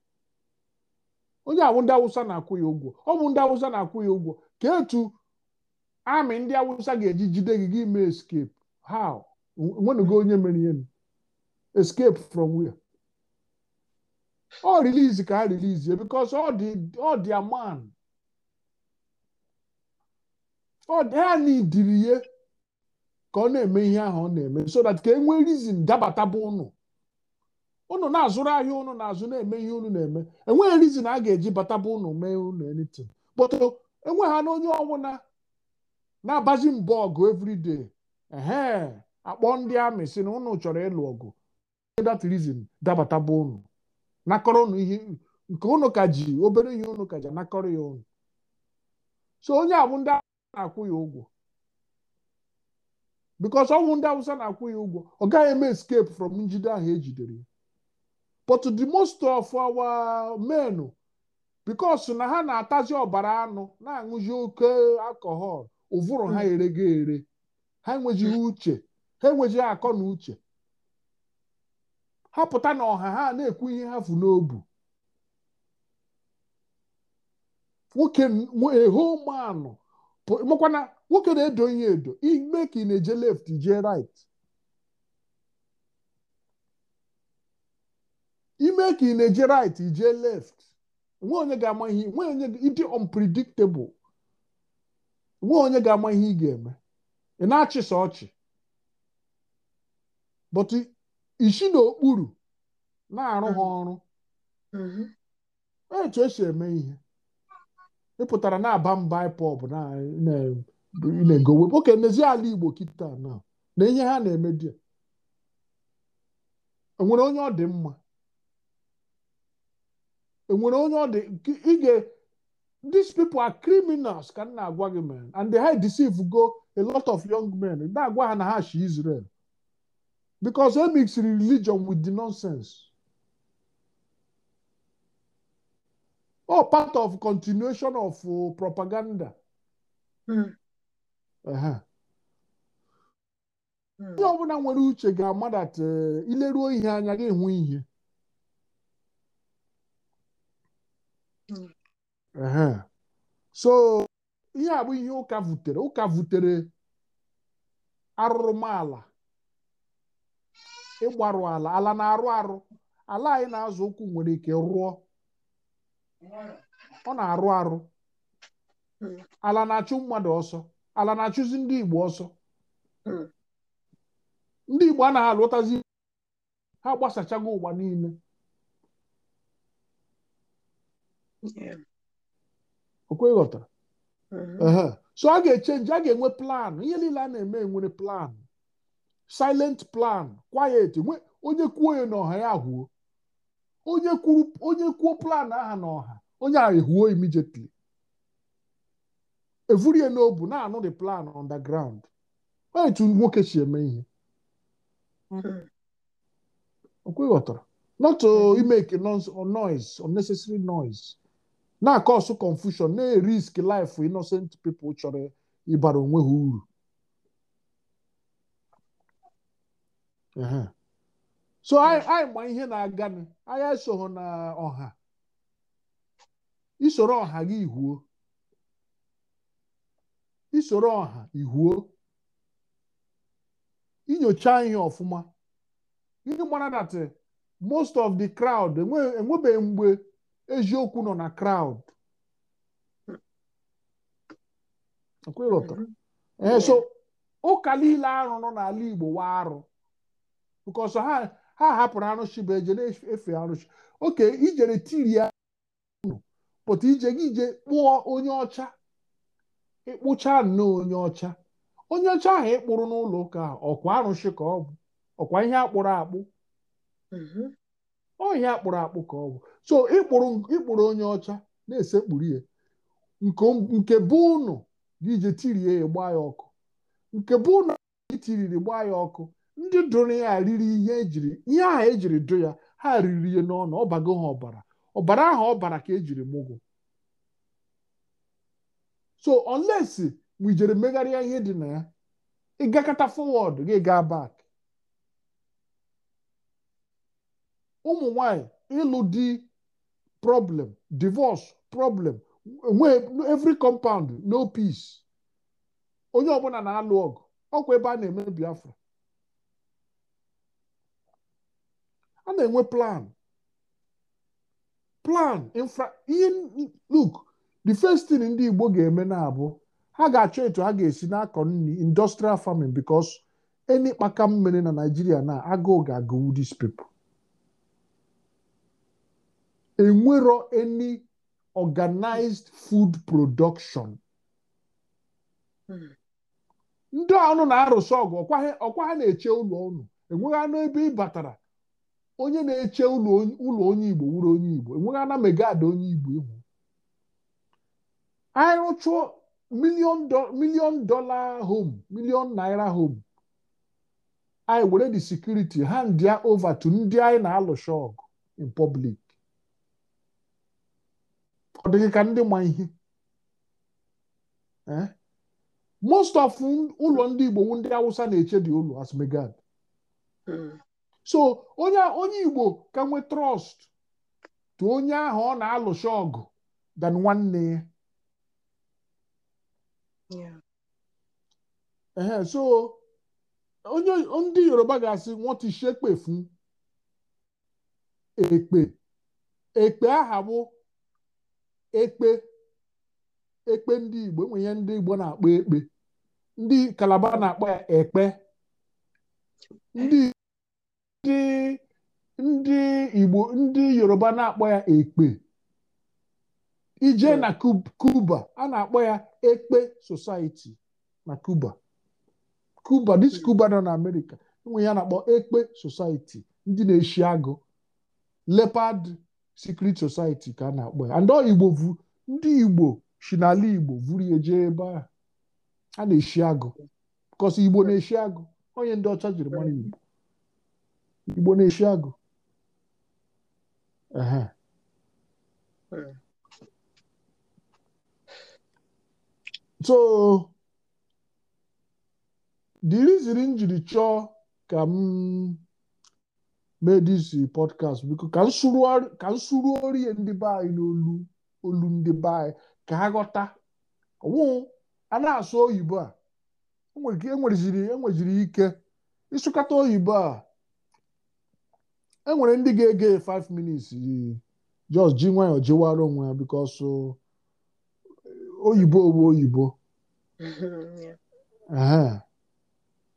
S1: onye awụ ndị awụsa na-akwụ ya ụgwọ ọ bụ ndị awụsa na-akwụ ya ụgwọ ka etu amị ndị awụsa ga-eji jide gị gị mee escape how nwenugo onye mere ihe escape from where ọ release ka ha release because ọ dị ọ dị a man ọ dị ha n'idiri ya ka ọ na-eme ihe ahụ ọ na-eme so that ka e nwee reason dabata bụ ụnụ ụnụ na-azụrụ ahịa ụnụ na-azụ na-eme ihe ụnụ na-eme enweghị reason a ga-eji bataba ụnụ mee ụnụ anything but enweghị ha na onye ọbụla na-abazi mbọ ọgụ everyday ehe akpọ ndị amị si na ụnụ chọrọ ịlụ ọgụ that reason dabataba ụnụ nakọrọ ụnụ ihe nke ụnụ ka ji obere ihe ụnụ ka ji anakọrọ ya ụnụ so onye abụ ndị awụsa na-akwụ ya ụgwọ because ọnwụ ndị awụsa na-akwụ ya ụgwọ ọ gaghị eme escape from njide ahụ ejidere ya but the most of our men because na ha na-atazi ọbara anụ na-aṅụzi oke alcohol ụvụrụ ha ereghị hmm. ere ha enweghị uche ha enweghị akọ na uche ha pụta na ọha ha na-ekwu ihe ha fu n'obu nwoke ehomanụ mekwana nwoke na-edo ihe edo ime ka ị na-eje left jee right ime ka ị na-eje right jee left onwe onye ga-ama ihe nwe onye ịdị unpredictable nwe onye ga-ama ihe ị ga-eme ị na achịsa ọchị but isi n'okpuru na-arụ ha hmm. ọrụ hmm. etu esi eme ihe ịpụtara na-aba mba ipọb na-egowe oke n'ezie ala Igbo kịta na na ihe ha na-eme dị enwere onye ọ dị mma enwere onye ọ dị ige these people are criminals ka m na-agwa gị man and they deceive go a lot of young men na-agwa ha na ha shi Israel because he mixed religion with the nonsense. Oh, part of continuation of uh, propaganda. Mm. ọbụla nwere uche ga-ama dat uh, ileruo ihe anya gị enwe ihe. Hmm. Uh-huh. So ihe a bụ ihe ụka vutere ụka vutere arụrụmala ịgbarụ ala ala na-arụ arụ ala anyị na-azụ ụkwụ nwere ike rụọ ọ na-arụ arụ ala na-achụ mmadụ ọsọ ala na-achụzi ndị Igbo ọsọ ndị Igbo a na ụtazi ha gbasachago ụwa niile okweghọta mm-hmm. so a ga-echenji a ga-enwe planụ ihe niile a na-eme enwere planụ silent plan quiet onye kwuo ya n'ọha ya hụo onye kwuru onye kwuo plan aha n'ọha onye ahụ ehuo immediately evurie n'obu na-anụ the plan on the onye nwoke si eme ihe mm-hmm. okweghọtara not to mm-hmm. make noise unnecessary noise na-akọsụ confusion na-erisk life innocent people chọrọ ịbara onwe ha uru so anyị ma ihe na nụ anyị esoghị na ọha isoro ọha gị ihuo isoro ọha ihuo inyocha ihe ọfụma ihe mara datị eh, most of the crowd enwebeghị e mgbe eziokwu nọ na crowd mm-hmm. eh, so ụka niile nọ n'ala Igbo wa arụ because ha ha hapụrụ arụsị bụ eje na-efe arụsị oke ijere tiri ya pụta ije gị ije kpụọ onye ọcha ịkpụcha nnọọ onye ọcha onye ọcha ahụ ịkpụrụ n'ụlọ ụka ọkwa arụsị ka ọ bụ ọkwa ihe akpụrụ akpụ mm-hmm. ọ ihe akpụrụ akpụ ka ọ bụ so ịkpụrụ onye ọcha na-esekpuru ya nke bụ ụnụ gị ije ya gbaa ya ọkụ nke bụ ụnụ gị tiriri gbaa ya ọkụ ndị dụrụ ya riri ihe ejiri ihe ahụ ejiri dụ ya ha riri ihe n'ọnụ ọbago ha ọbara ọbara ahụ ọbara ka ejiri mụgụ so unless we jere megharịa ihe dị na ya ịgakọta forward gị gaa back ụmụ nwanyị ịlụ di problem divorce problem every compound no peace onye ọbụla na-alụ ọgụ ọkwa ebe a na-eme Biafra a na-enwe plan plan infra ihe look the first thing ndị Igbo ga-eme na-abụ ha ga-achọ etu ha ga-esi na-akọ nri industrial farming because eni kpaka mmiri na nigeria na agụụ ga-agụwu this enwero eni organized food production ndị ọnụ na-arụsị ọgụ ọkwa ha na-eche ụlọ ụnụ enweghị anụ ebe ị batara onye na-eche ụlọ onye igbo wuru onye igbo enweghị ana megad onye igbo ihu anyị rụchụọ milion dola home milion naira home anyị were the security hand ya over to ndị anyị na-alụsha ọgụ in public ọ dịghị ka ndị ma ihe eh? most of ụlọ ndị igbo ndị awụsa na-eche dị ụlọ as megad hmm. so onye onye igbo ka nwee trọst tụ onye ahụ ọ na-alụcha ọgụ dan nwanne ya so onye ndị yoruba ga-asị wọ́n ti ekpe ekpe aha bụ ekpe ekpe ndị igbo enwe ihe ndị igbo na-akpọ ekpe ndị kalaba na-akpọ ekpe ndị ndị ndị Igbo ndị Yoruba na-akpọ ya ekpe ije na Cuba a na-akpọ ya ekpe society na Cuba Cuba dis Cuba hmm. nọ na Amerika, enwe ya na-akpọ ekpe society ndị na-eshi agụ leopard secret society ka a na-akpọ ya and Igbo ndị Igbo si n'ala Igbo vuru ya jee ebe a na-eshi agụ because Igbo na-eshi agụ onye ndị ọcha jiri mara Igbo Igbo na-eshi agụ so diriziri m jiri chọọ ka m mee dis podcast biko ka nsuru orie ndị be anyị n'olu olu ndị be anyị ka ha ghọta ọwụ a na-asụ oyibo a enweziri ike ịsụkata oyibo a enwere ndị ga-ege 5 yi just ji nwayọọ jiwara onwe ya bikos eh, oyibo owu oyibo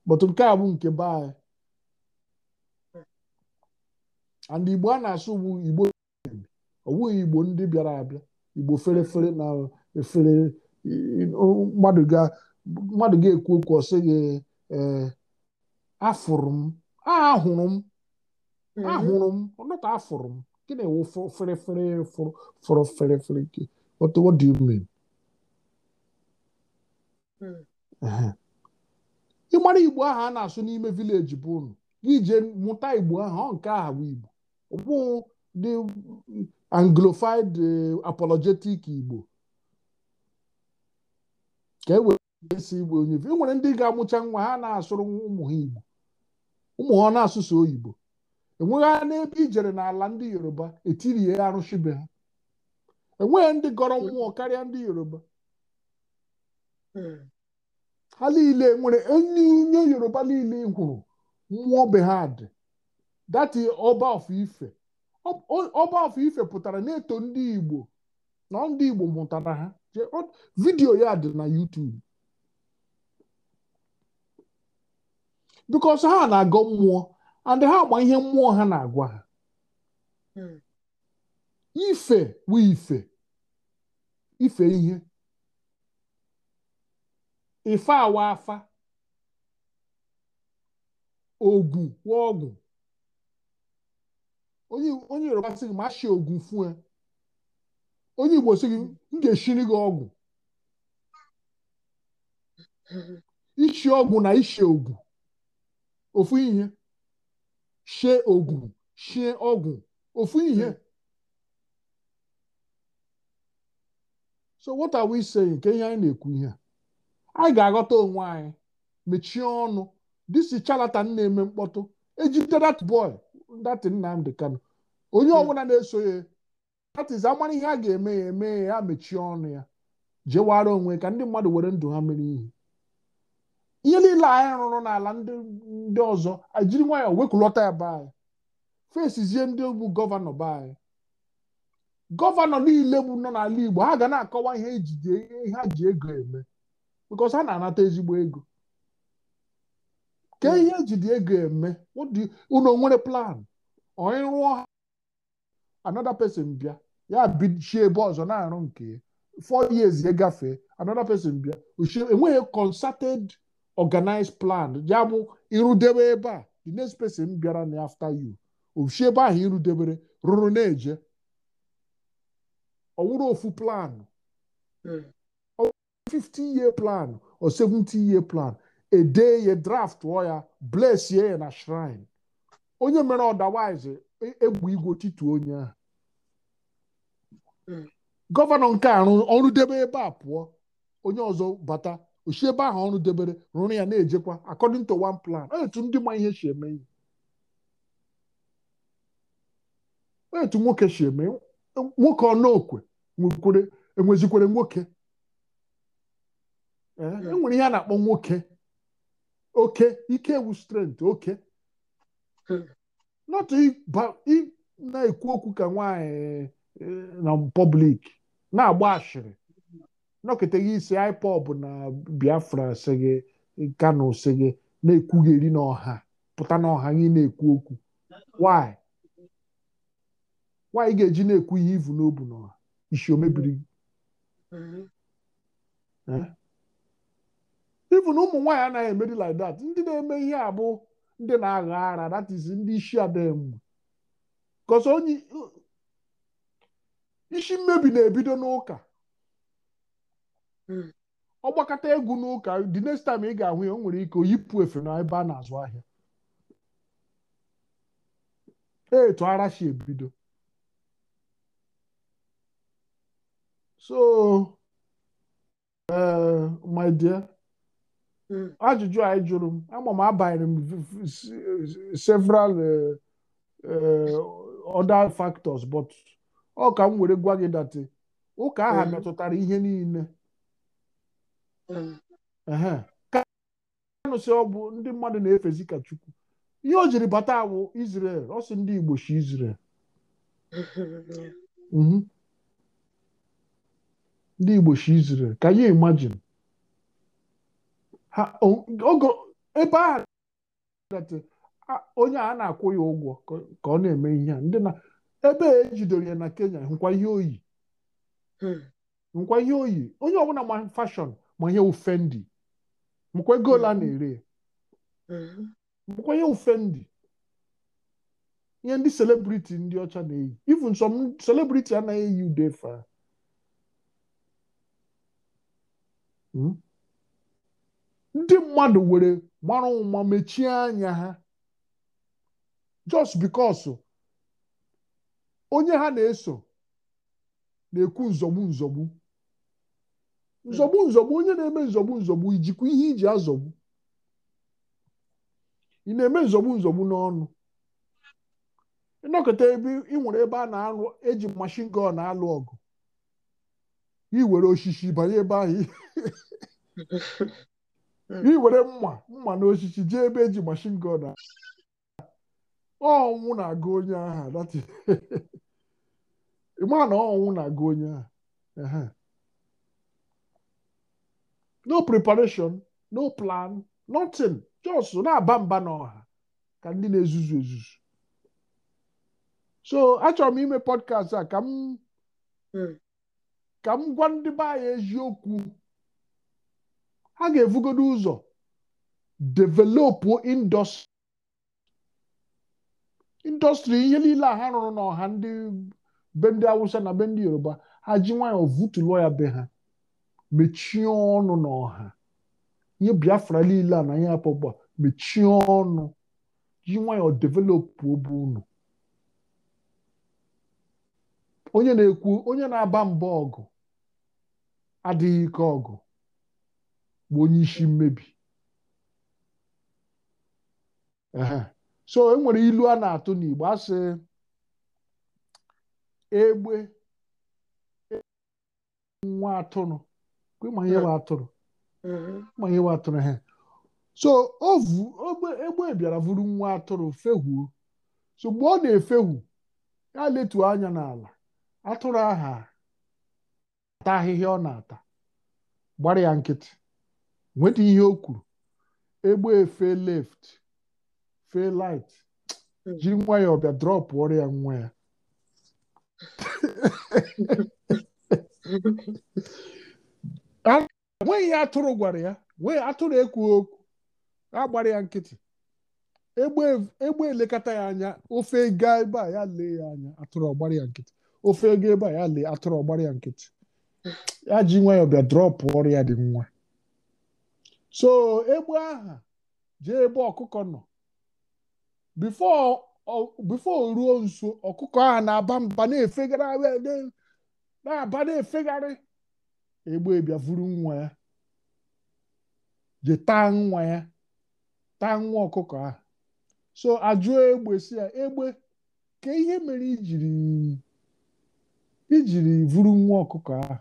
S1: but nke a bụ nke be anyị and igbo a na-asụ ugbu igbo ọ igbo ndị bịara abịa igbo fere fere na efere eh, mmadụ ga-ekwu okwu ọ sịghị eh, afụrụ m ahụrụ m ahụrụ m mm-hmm. ọnọtọ afụrụ m gị na-ewu fere fere fụrụ fere fere gị what mean mm. ịmara igbo ahụ a na-asụ n'ime vileji bụ unu gị jee mụta igbo ahụ ọ nke ahụ bụ igbo ọ bụghị dị anglofied apologetic igbo ka e were esi igbo onye e nwere ndị ga-amụcha nwa ha na-asụrụ ụmụ ha igbo ụmụ ha na-asụsụ oyibo enweghị n'ebe ijere n'ala ndị yoruba etirie arụshibe ha enweghị ndị gọrọ mmụọ karịa ndị yoruba ha niile nwere onye nye yoruba niile kwuru mmụọ be ha dị dati ọba ife ọba ife pụtara na-eto ndị igbo na ndị igbo mụtara ha vidiyo ya dị na YouTube bikos ha na-agọ mmụọ and ha agba ihe mmụọ ha na-agwa ha hmm. ife wu ife ife ihe ife awa afa ogwu wa ọgwụ onye Yoruba sị gị ma shi ogwu fue onye Igbo sị gị m ga-eshiri gị ọgwụ hmm. ishi ọgwụ na ishi ogu ofu ihe shie ogwu shie ọgwụ ofu ihe so what are we saying nke ihe anyị na-ekwu ihe anyị ga-aghọta onwe anyị mechie ọnụ disi charlatan na-eme mkpọtụ ejide that boy that Nnamdi kano onye ọbụla na-eso ya that is amara ihe a ga-eme ya eme ya mechie ọnụ ya jewara onwe ka ndị mmadụ were ndụ ha mere ihe ihe niile anyị rụrụ n'ala ndị ọzọ ajiri nwayọọ wekulọta ya be anyị fesizie ndị bụ gọvanọ be anyị gọvanọ niile bụ nọ n'ala Igbo ha ga na-akọwa ihe ejide ihe ha ji ego eme because ha na-anata ezigbo ego kee ihe ejide ego eme unu nwere plan onye rụọ ha anoda pesin bịa ya bichie ebe ọzọ na-arụ nke four years ya gafee anoda pesin bịa enweghị konsated. organize plan ya bụ irudebe ebe a the next person bịara na after you oshi ebe ahụ irudebere rụrụ na-eje ọwụrụ wụrụ ofu plan 50 hmm. year plan or 70 year plan ede ya draft ya bless ya na shrine onye mere ọdawize egbu e igwe titu onye ahụ hmm. gọvanọ nke arụ ọrụ debe ebe a pụọ onye ọzọ bata osi ebe ahụ ọrụ debere rụrụ ya na-ejekwa according to one plan etu ndị ma ihe si eme ihe etu nwoke si eme nwoke ọnọkwe enwezikwere nwoke enwere eh, e ihe a na-akpọ nwoke oke ike ewu strent oke not na-ekwu okwu ka nwaanyị eh, na public na-agba ashịrị nọkịta gị isi IPOB na Biafra si gị Kano eh, si gị na-ekwugheri n'ọha pụta n'ọha gị na-ekwu okwu why why ị ga-eji na-ekwu ihe ivu n'obu n'ọha isi omebiri gị na ụmụ nwaanyị anaghị emeri like that ndị na-eme ihe a bụ ndị na-agha ara that is ndị isi adamụ because onye isi uh, mmebi na-ebido n'ụka Hmm. ọ gbakọta egwu n'ụka dị next time ị ga-ahụ ya o nwere ike yipụ efe na ebe a na-azụ ahịa etu arashi ebido so eh, my hmm. ajụjụ anyị jụrụ m ama m abanyere m several eh, eh, other factors but ọ ka m were gwa gị datị ụka aha hmm. metụtara ihe niile kanụsị ọgwụ ndị mmadụ na-efezi ka chukwu ihe o jiri bata awụ Israel ọ ndị Igbo chi Israel mhm. ndị Igbo Israel ka ya imagine ebe a onye a na-akwụ ya ụgwọ ka ọ na-eme ihe a ndị na ebe ejidoro ya na Kenya nkwa ihe oyi nkwa hmm. ihe oyi onye ọbụla ma fashion. ma ihe ufendi mkwa ego ole mm-hmm. a na-ere mkwa mm-hmm. ihe ndị ihe ndị selebriti ndị ọcha na-eyi even some selebriti anaghị eyi ude fa hmm? ndị mmadụ were mara ụma mechie anya ha just because onye ha na-eso na-ekwu nzọgbu nzọgbu nzọgbu nzọgbu onye na-eme nzọgbu nzọgbu ijikwa ihe iji azọgbu ị na-eme nzọgbu nzọgbu n'ọnụ ịnọkọta ebe ị nwere ebe a na-alụ eji mashin gọn na-alụ ọgụ were osisi banye ebe ahụ iwere mma mma na osisi jee ebe eji mashin gọn ọnwụ na-agụ onye agha na ọnwụ na-agụ onye agha no preparation no plan nothing just na-aba mba n'ọha ka ndị na-ezuzu ezuzu so achọrọ m ime podcast a ka m hmm. ka m gwa ndị be anyị eziokwu ha ga-evugodo ụzọ developụ indọstrị ihe niile a ha rụrụ n'ọha ndị be ndị awụsa na be ndị yoruba ha ji nwayọọ vutulụọ ya be ha mechie ọnụ n'ọha ihe biafra niile a na ihe apọgba mechie ọnụ ji nwayọ developụ obi unu onye na-ekwu onye na-aba mba ọgụ adịghị ike ọgụ bụ onye isi mmebi so enwere ilu a na-atụ n'Igbo asị egbe nwa atụrụ ma ihe wa atụrụ ma ihe wa atụrụ ha so egbe bịara vụrụ nwa atụrụ fehuo so mgbe ọ na-efehu ya letu anya n'ala atụrụ aha ata ahịhịa ọ na-ata gbara ya nkịtị nweta ihe o kwuru egbe efe left fe light hmm. jiri nwa ya ọbịa drọpụ ọrụ ya nwa ya enweghị atụrụ gwara ya wee atụrụ ekwughị okwu agbara ya nkịtị egbe elekọta ya anya ofe gaa ebe a ya lee ya anya atụrụ ọgbara ya nkịtị ofe ego ebe a ya lee atụrụ ọgbara ya nkịtị ya ji nwayọọ bịa drọpụ ọrụ ya dị nwa so egbe aha jee ebe ọkụkọ nọ bifo ruo nso ọkụkọ ahụ na-aba mba na-efegharị na-aba na-efegharị egbe ebia vuru nwa ya ji taa nwa ya taa nwa ọkụkọ ahụ so ajụọ egbe si egbe ka ihe mere ijiri ijiri vuru nwa ọkụkọ ahụ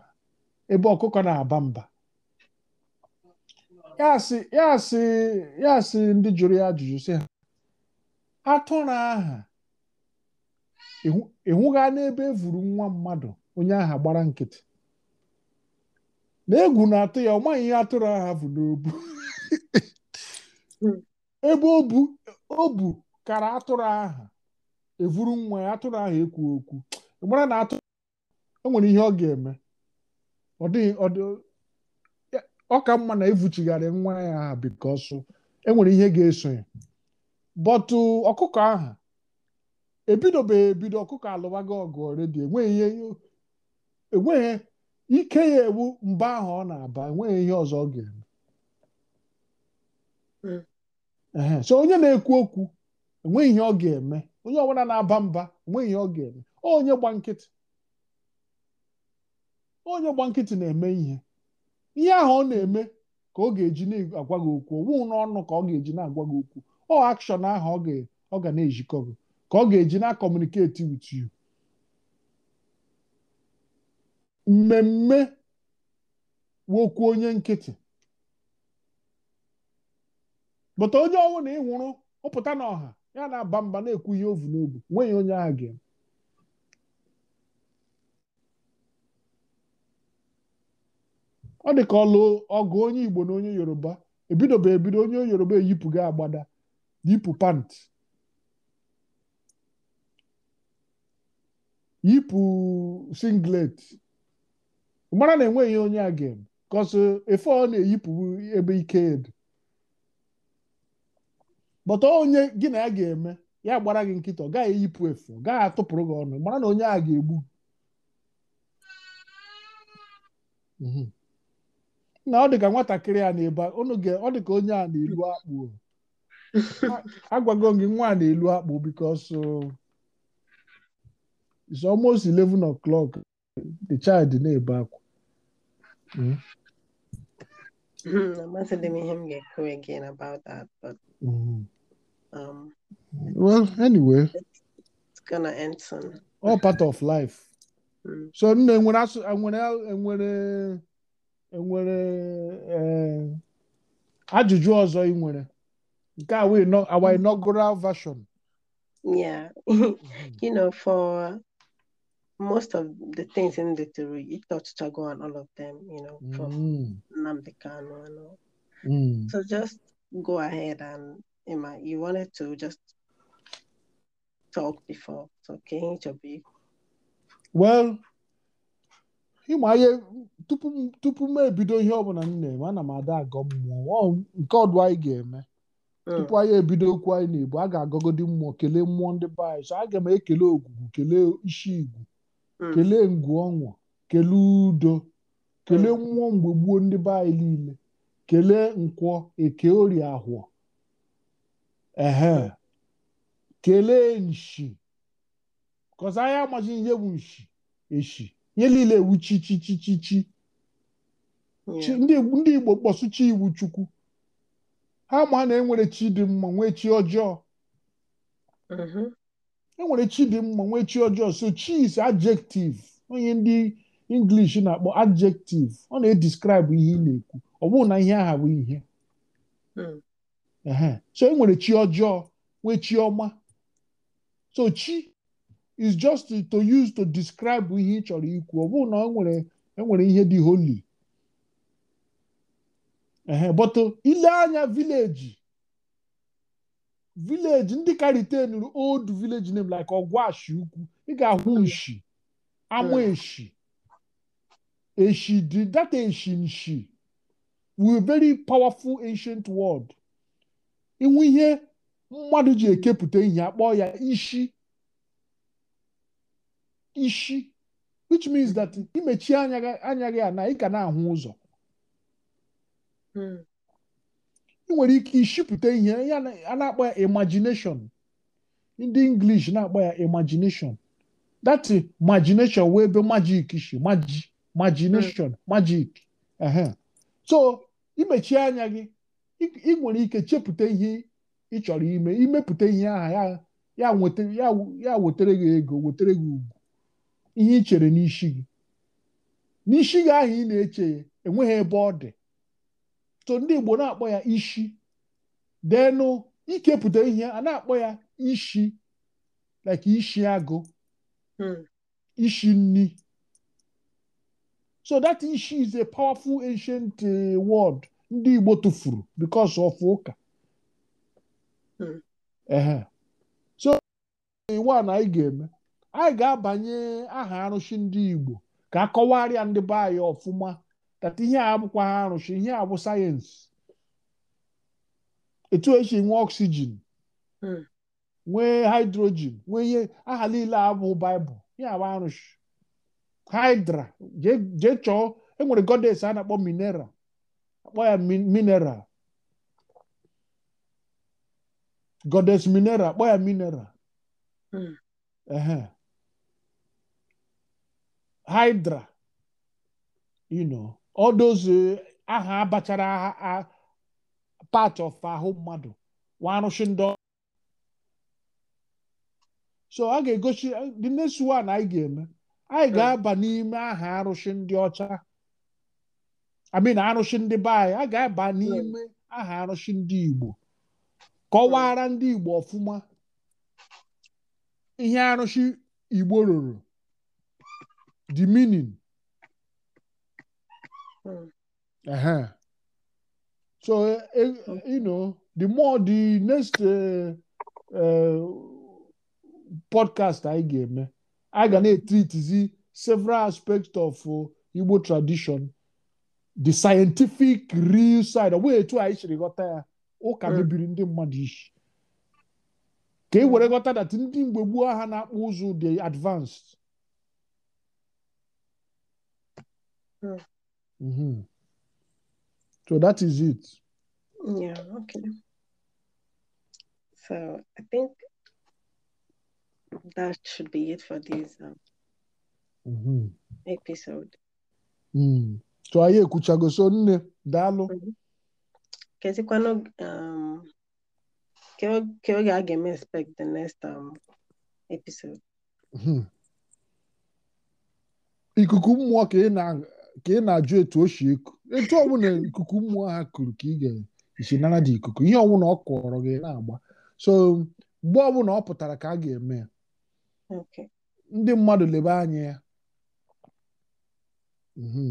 S1: ebe ọkụkọ na-aba mba ya sị ndị jụrụ ya ajụjụ sị ha atụrụ aha ịhụga n'ebe e evuru nwa mmadụ onye aha gbara nkịtị na egwu na-atụ ya ọ maghị ihe atụrụ aha bụ n'obu hmm. ebe o bu kara atụrụ aha evuru nwa ya atụrụ aha ekwu okwu mara na atụ enwere ihe ọ ga-eme ọ dịghị ọ ka mma na evuchigharị nwa ya aha bikos enwere ihe ga-eso ya bọtụ ọkụkọ aha ebidobeghị ebido ọkụkọ alụwago ọgụ redio enweghị ike ya ewu mgbe ahụ ọ na-aba enweghị ihe ọzọ ọ ga-eme hmm. so onye na-ekwu okwu enweghị ihe ọ ga-eme onye ọbụla na-aba mba enweghị ihe ọ ga-eme onye gba nkịtị onye gba nkịtị na-eme ihe ihe ahụ ọ na-eme ka ọ ga-eji na-agwa gị okwu owu n'ọnụ ka ọ ga-eji na-agwa gị okwu ọ akshọn ahụ ọ ga na-ejikọ gị ka ọ ga-eji na-akọmuniketi with mmemme wokwu onye nkịtị bụta onye ọnwụ na ị ụpụta n'ọha ya na-aba mba na-ekwu ihe ovu n'obu nweghị onye agha gị ọ dị ka ọlụ ọgụ onye Igbo na onye Yoruba ebidobe ebido onye Yoruba gị agbada yipụ pant yipụ singlet mara na enweghị onye a ga efe ọ na-eyipụ ebe ike edu bọta onye gị na ya ga-eme ya gbara gị nkịta ọ gaghị eyipụ efe ọ gaghị atụpụrụ gị ọnụ mara na onye a ga-egbu mhm. na ọ dị ka nwatakịrị a na-ebe ọ dị ka onye a na-elu akpụ agwago gị nwa a na-elu akpụ because uh, is almost 11 o'clock the child na-ebe akwa m
S2: ihe m ga again about that hmm. um,
S1: well anyway
S2: it's gonna end soon
S1: all part of life hmm. so nne enwere asụ enwere enwere enwere ajụjụ ọzọ ị nwere nke a our inaugural version yeah
S2: you know for most of the things in the theory, you thought Chago and all of them,
S1: you know, from mm.
S2: Namdekano and all. Mm. So just go ahead and Emma, you wanted to just talk before. So can you be?
S1: Well, ịma ihe tupu tupu m ebido ihe ọbụla m na-eme ana m ada agọ mmụọ nke ọdụ anyị ga-eme mm. tupu anyị ebido okwu anyị n'Igbo a ga-agọgodi mmụọ kelee mmụọ ndị be anyị so aga m ekele ogwugwu kelee isi igwu Mm. kelee ngwu ọṅụ kelee udo kelee mmụọ mgbe gbuo ndị be anyị niile kelee nkwọ eke orie ahụọ ehe mm. kelee nshi kọsa anya amachi ihe bụ nshi eshi ihe niile ewu chichichichichi mm. ndị Igbo kpọsụcha iwu chukwu ha ma na enwere chi dị mma nwee chi ọjọọ mm-hmm. enwere chi dị mma nwee chi ọjọọ so chi is adjective onye ndị English na-akpọ adjective ọ na-edescribe ihe ị na-ekwu ọ bụrụ na ihe aha bụ ihe hmm. so enwere chi ọjọọ nwee chi ọma so chi is just to use to describe ihe ị chọrọ ikwu ọ bụrụ na enwere e ihe dị holy but ile anya vileji vileji ndị ka ritenuru old village name like ọgwashi ukwu ị ga-ahụ hmm. nshi ama hmm. eshi eshi dị that eshi nshi we very powerful ancient world inwe ihe mmadụ ji ekepụta ihe akpọ ya ishi ishi which means that imechie anya gị ana ị ka na-ahụ ụzọ hmm. nwere ike ishipụta ihe a na-akpọ ya imagination ndị English na-akpọ ya imagination that imagination wee ebe magic shi majik imagination hmm. magic so imechie anya gị ị nwere ike chepụta ihe ị chọrọ ime imepụta ihe aha ya wetara gị ego wetara gị ugwu ihe ị chere n'isi gị n'isi gị ahụ ị na-eche enweghị ebe ọ dị so ndị Igbo na-akpọ ya ishi deenụ ikepụta ihe a na-akpọ ya ishi like ishi agụ hmm. ishi nni so that ishi is a powerful ancient uh, word ndị Igbo tụfuru because of ụka hmm. so nwa na anyị ga-eme anyị ga-abanye aha arụsị ndị Igbo ka a kọwarịa ndị be anyị ọfụma tata ihe a abụkwa ha arụsị ihe a bụ sayensị etu esi nwee oxygen nwee hmm. haịdrojin nwee ihe aha niile abụ baịbụl ihe abụ arụsị hydra jee chọọ enwere godes a na-akpọ minera akpọ ya mineral godes minera akpọ ya mineral haịdra hmm. you know odozu aha abachara part of ahụ mmadụ warụchi ndị so ọ ga-egosi dị n'esuwa na anyị ga-eme anyị hmm. ga-aba n'ime aha arụsị ndị ọcha amin arụsị ndị be anyị a ga-aba hmm. n'ime aha arụsị ndị igbo kọwara hmm. ndị igbo ọfụma ihe arụsị igbo rụrụ the Uh-huh. So, uh, you know, the more the next uh, uh, podcast I game, I can hmm. treat the several aspects of oh, Igbo tradition, the scientific real side, way to I should got ya ụka bibiri ndị mmadụ isi ka e were ghọta dat ndị mgbe gboo ha na-akpụ ụzụ dị advanced Mm-hmm. So that is it.
S2: Yeah, okay. So I think that should be it for this um, mm-hmm. episode.
S1: Mm. So anyị ekwuchago so nne daalụ
S2: mm-hmm. um, ke oge expect the next um, episode.
S1: Mm-hmm. ikuku mmụọ ka ị na ka ị na-ajụ etu o si eku etu ọbụla ikuku mmụọ ha kuru ka ị ga-esi nara dị ikuku ihe ọbụla ọ kọrọ gị na-agba so mgbe ọbụla ọ pụtara ka a ga-eme ya ndị mmadụ lebe anya ya mhm.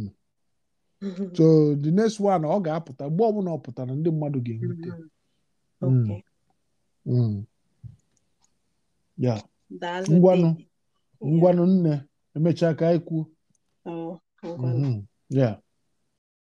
S1: so the next one ọ ga-apụta mgbe ọbụla ọ pụtara ndị mmadụ ga-enweta mm-hmm. mm. ya mm. ngwanụ ngwanụ nne emechaa ka anyị kwuo Hold Mm-hmm. Yeah.